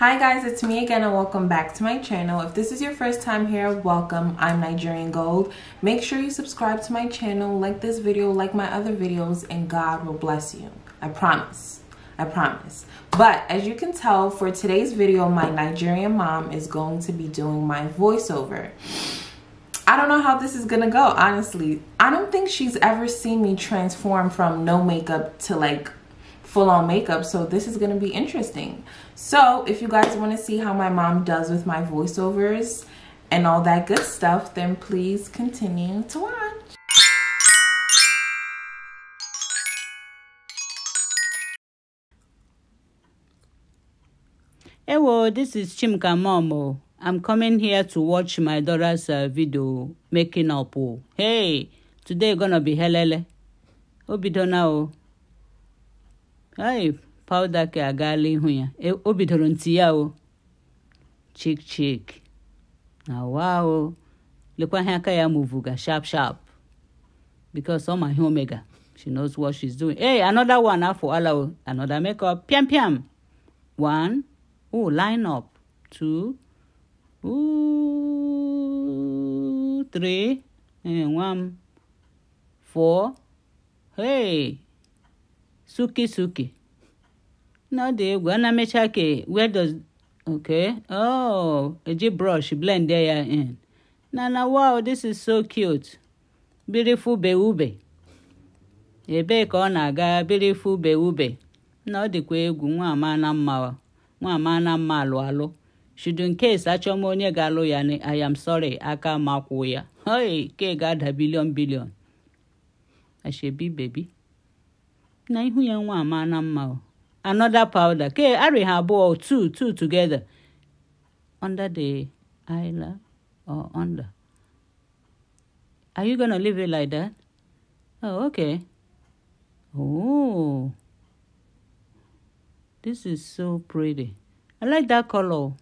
Hi guys, it's me again and welcome back to my channel. If this is your first time here, welcome. I'm Nigerian Gold. Make sure you subscribe to my channel, like this video, like my other videos, and God will bless you. I promise. I promise. But as you can tell, for today's video, my Nigerian mom is going to be doing my voiceover. I don't know how this is gonna go, honestly. I don't think she's ever seen me transform from no makeup to like full-on makeup so this is going to be interesting so if you guys want to see how my mom does with my voiceovers and all that good stuff then please continue to watch Hello, this is Chimka Momo. Oh. I'm coming here to watch my daughter's uh, video making up. Oh. Hey, today gonna be helele. Obidona o. Oh. ai Paudake agaala ihu ya o bidoro ntị ya o chik chik na wa lekwa ihe aka ya muvuga sharp sharp because ọ ma ihe omega she knows what she's doing hey another one afọ ah, ala o oh. another makeup piam piam one ooh line up two ooh three ee one. four hey suki suki na ọ dị egwu ana mecha ke where does eji oh, brọsh blend ya in na na wow this is so cute beautiful beube ebee ka ọ na-aga beautiful beube na ọ dịkwa egwu nwa amana mma nwa amana mma alụ alụ should nke case achọm onye ga-alụ ya ni i am sorry aka ma kwụ ya hoi ke ga-ada bilion bilion ashebi bebi na ihu ya nwa amana mma another powder ke ari have both two two together under the eyelid or under are you gonna leave it like that oh okay oh this is so pretty i like that color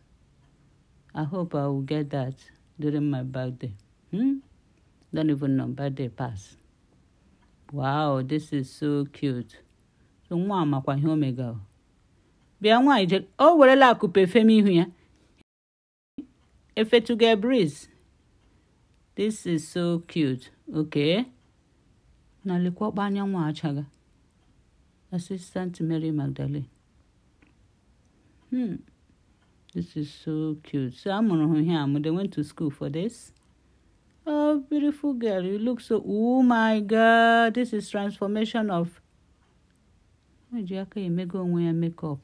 i hope i will get that during my birthday hmm don't even know birthday pass wow this is so cute nwa makwa ihe o megara bịa nwaanyị je o werela akụpe fem ihu ya efetuga breeze this is so cute okay na lekwakpa anyanwụ achaga assistant mary magdalene hmm. this is so cute so amụrụ hụ ihe amụ they went to school for this oh beautiful girl you look so oh my god this is transformation of O ji aka ya emego onwe ya mekọp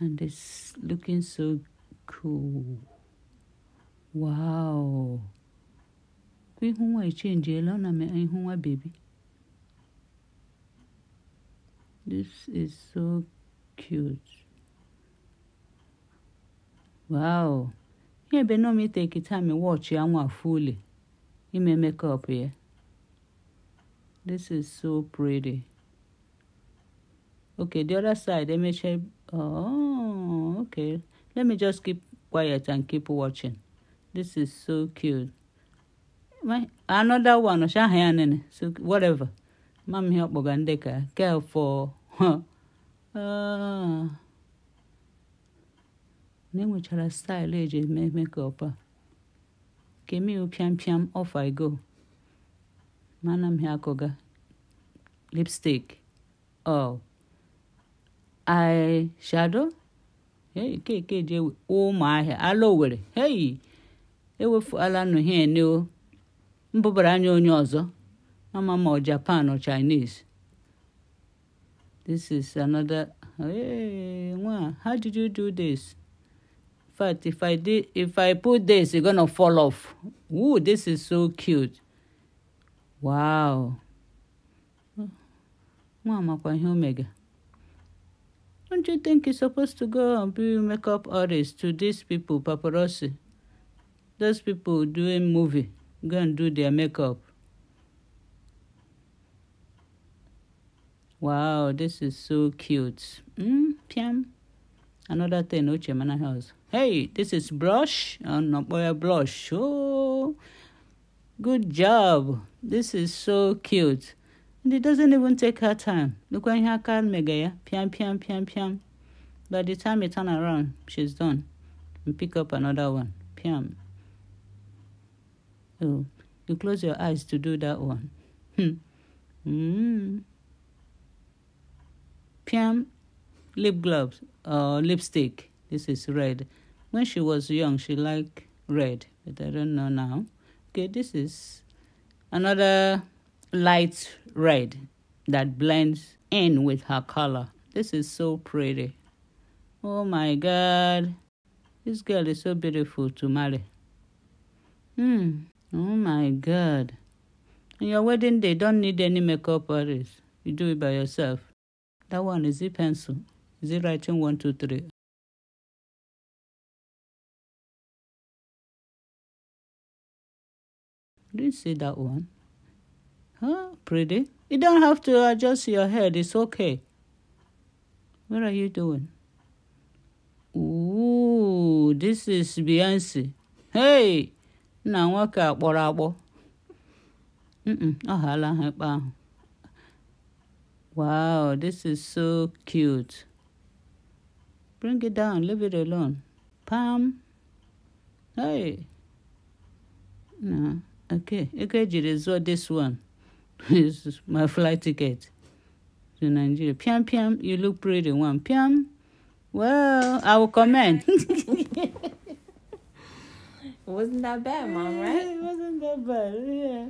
and it's looking so cool. Wow! Kwa ihu nwa ele, ọ na ihu nwa bebi. This is so cute. Wow! Ihe ebe nọ m iteki time wọchị ya nwa fully ime mekọp ya. This is so pretty. okay the other side MHL oh okay let me just keep quiet and keep watching this is so cute my another one shahanene so whatever mam here kpọga ndị ka care for ah. na enwechara style eji eh, eme ah. me a oh, kemiu piam piam off i go Manam m ha lipstick oh shadow. hey nke nke ji ewe ụmụahịa ala owere hey ewefuala nụ hie ne here new, anya onye ọzọ ama ma ọ japan or chinese this is another hey nwa how did you do this But if i did if i put this you're gonna fall off Ooh, this is so cute wow nwa amakwa ihe omega don't you think he's supposed to go and be makeup artist to these people, paparazzi? Those people doing movie, go and do their makeup. Wow, this is so cute. Mm, piam. Another thing, Oche Mana House. Hey, this is brush and boy blush. Oh, good job. This is so cute. And it doesn't even take her time. Look when her card mega, yeah? Piam, piam, piam, piam. By the time you turn around, she's done. You pick up another one. Piam. Oh, you close your eyes to do that one. Hmm. Mm. Piam, lip gloves or uh, lipstick. This is red. When she was young, she liked red, but I don't know now. Okay, this is another light red that blends in with her color. This is so pretty. Oh my God. This girl is so beautiful to marry. Hmm. Oh my God. On your wedding day, don't need any makeup artist. You do it by yourself. That one is it pencil? Is it writing one, two, three? didn't see that one. Huh? Pretty. You don't have to adjust your head. It's okay. What are you doing? Ooh, this is Beyonce. Hey! now nwoke a what I Ọ ghala ha Wow, this is so cute. Bring it down, leave it alone. Pam. Hey. No, okay. You could What this one. is my flight ticket to Nigeria. Piam, piam, you look pretty one. Piam, well, I will comment. it wasn't that bad, Mom, right? it wasn't that bad, yeah.